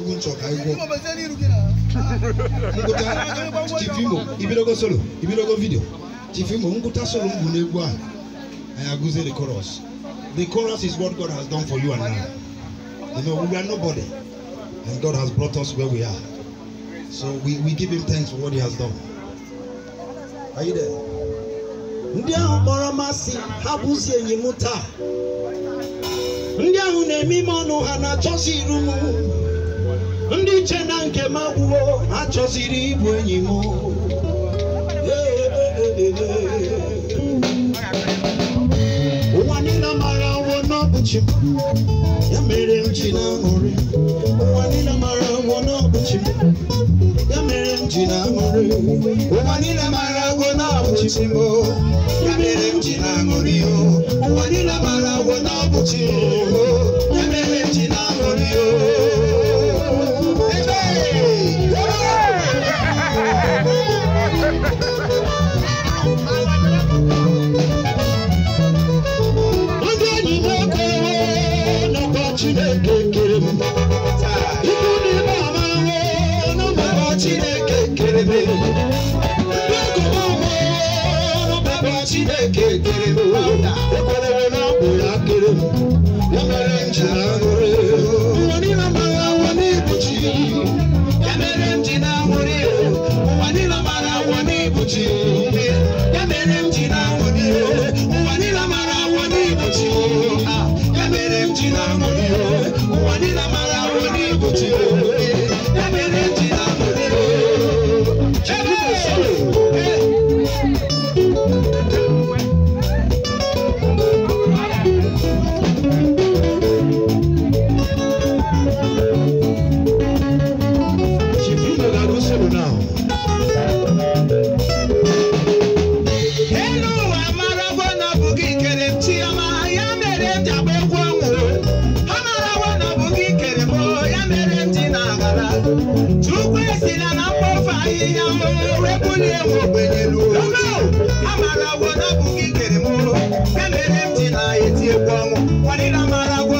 dogo nsọ ka ayi bọ ibidogo solo ibidogo video tifimo nkuta solo ngu n'egwu a I the chorus the chorus is what God has done for you and I you know we are nobody and God has brought us where we are so we we give him thanks for what he has done are you there. ndị ahụ kpọrọ masị ha bụzi enyi m taa ndị ahụ na-eme ime ọnụ ha na-achọsi iru m ndị iche na nke m agwụwo ha chọziri ịbụ enyi m ụwa niile mara nwụọ n'ọbụchi ya mere m ji na-aṅụrị ụwa niile mara nwụọ n'ọbụchi ya mere m ji na-aṅụrị ụwa niile mara nwụọ n'ọbụchi m ya mere m ji na-aṅụrị ụwa niile mara nwụọ n'ọbụchi ya mere m ji na-aṅụrị Chineke kere m ekwerere na ọ ya kere m ya mere m aṅụrụ chukwuesi na na mkpofu ahịhịa mụrụ ekwuli ewu ogbenyelu amara agwọ na abụghị ikere m kemere m ji na eti egwu ọnwụ kwadịra amara agwọ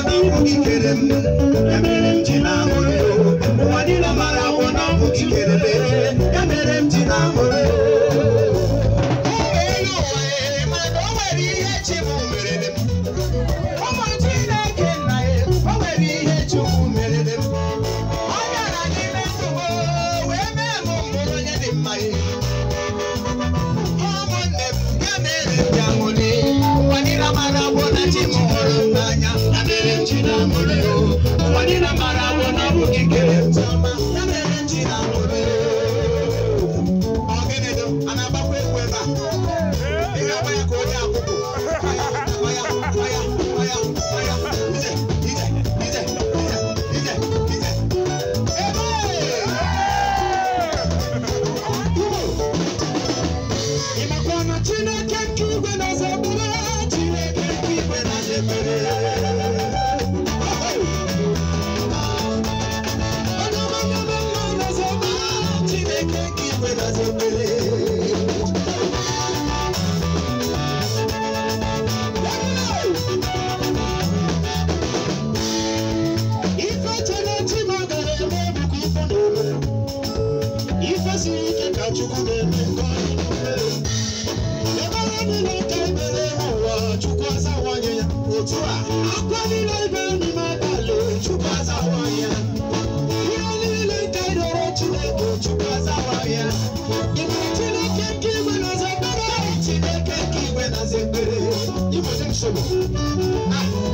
I'm ife siri ike You chukwu na-eme nke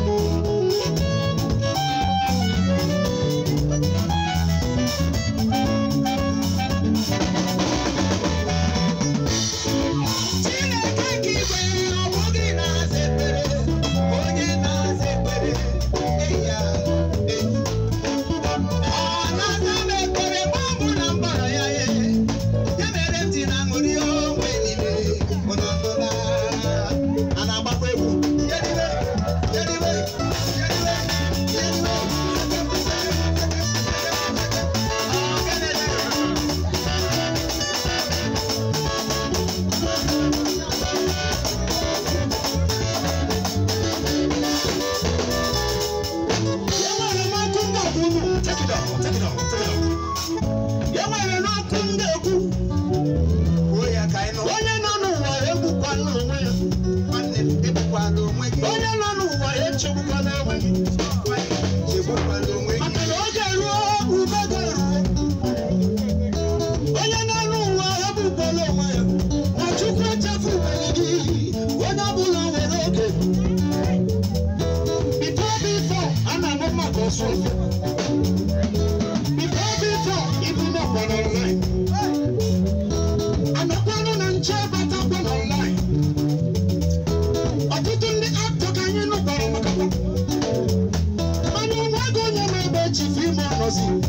mercy.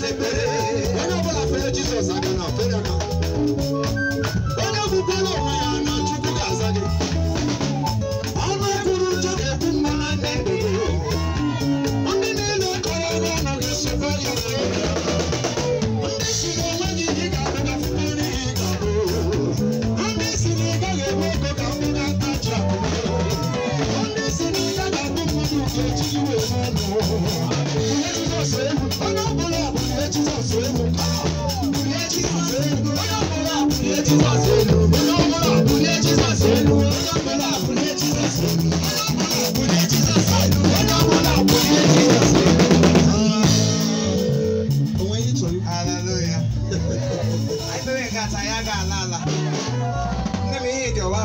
na se pere. Ena bola de Jesus, não, fere não.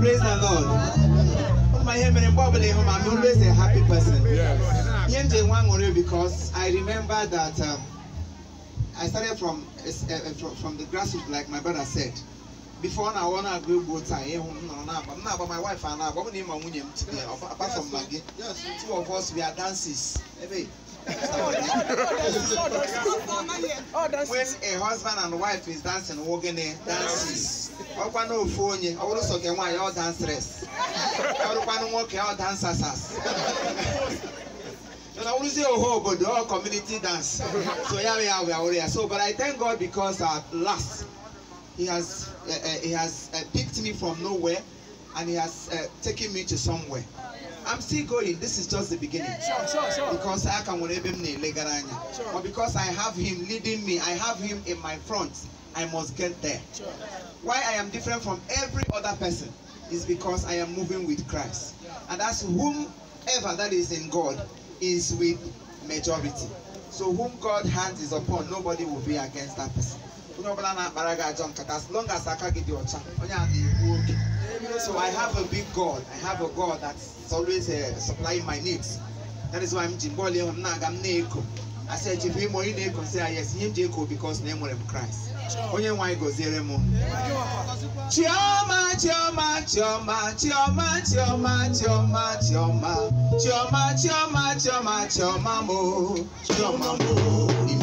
Praise the Lord. My name is I'm always a happy person. Yes. Because I remember that um, I started from, uh, from, from the grassroots, like my brother said. Before now, I want to go both sides. I'm eh, um, not but my wife and I, but my wife. Apart from Maggie, two of us, we are dancers when a husband and wife is dancing wogene dances ọkwanụ ofu onye ọ bụrụ sọ ka nwaanyị ọ danseres ọ bụrụkwanụ nwoke ọ dansasas na wurusi oho obodo ọ community dance so ya ya we are here so but i thank god because at last he has uh, uh, he has uh, picked me from nowhere and he has uh, taken me to somewhere. I'm still going. This is just the beginning. Sure, sure, sure. Because I can sure. But because I have him leading me, I have him in my front. I must get there. Sure. Why I am different from every other person is because I am moving with Christ. And that's whomever that is in God is with majority. So whom God hands is upon, nobody will be against that person. As long as I can get your chance. So I have a big God. I have a God that's It's always uh, supplying my needs. That is why I'm Jimbole, I'm not, I'm Neko. I said, if you want to say yes, him Jacob because name of Christ. Onye why go zere mo. Chioma, chioma, chioma, chioma, chioma, chioma, chioma, chioma, chioma, chioma, chioma mo, chioma mo.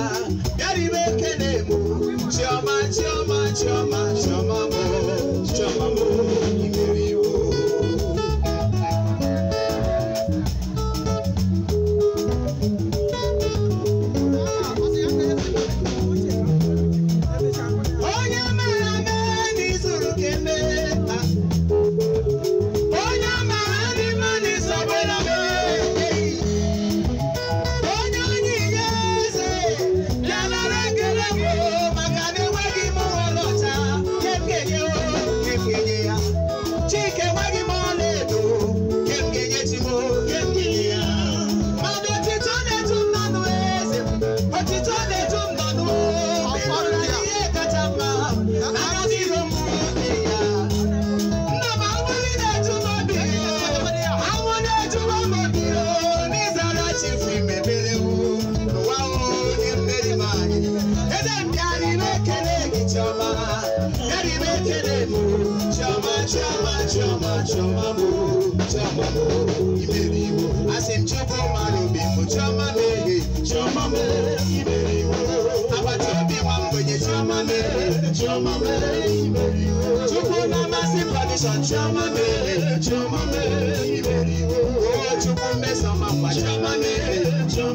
chama chama mo chama mo Chama asim chama manu bi mo chama mehe chama me iberiwo chama me chama me iberiwo chukwu na chama, tradition chama me chama me iberiwo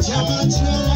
Jamacho.